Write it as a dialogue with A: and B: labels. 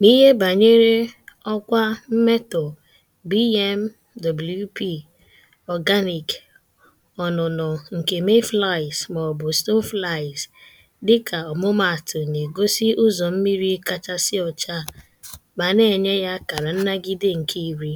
A: n'ihe banyere ọkwa mmetọ BMWP Organic ọnụnọ nke Mayflies maọbụ Stoneflies dịka ọmụmaatụ na-egosi ụzọ mmiri kachasị ọcha ma na-enye ya akara nnagide nke iri.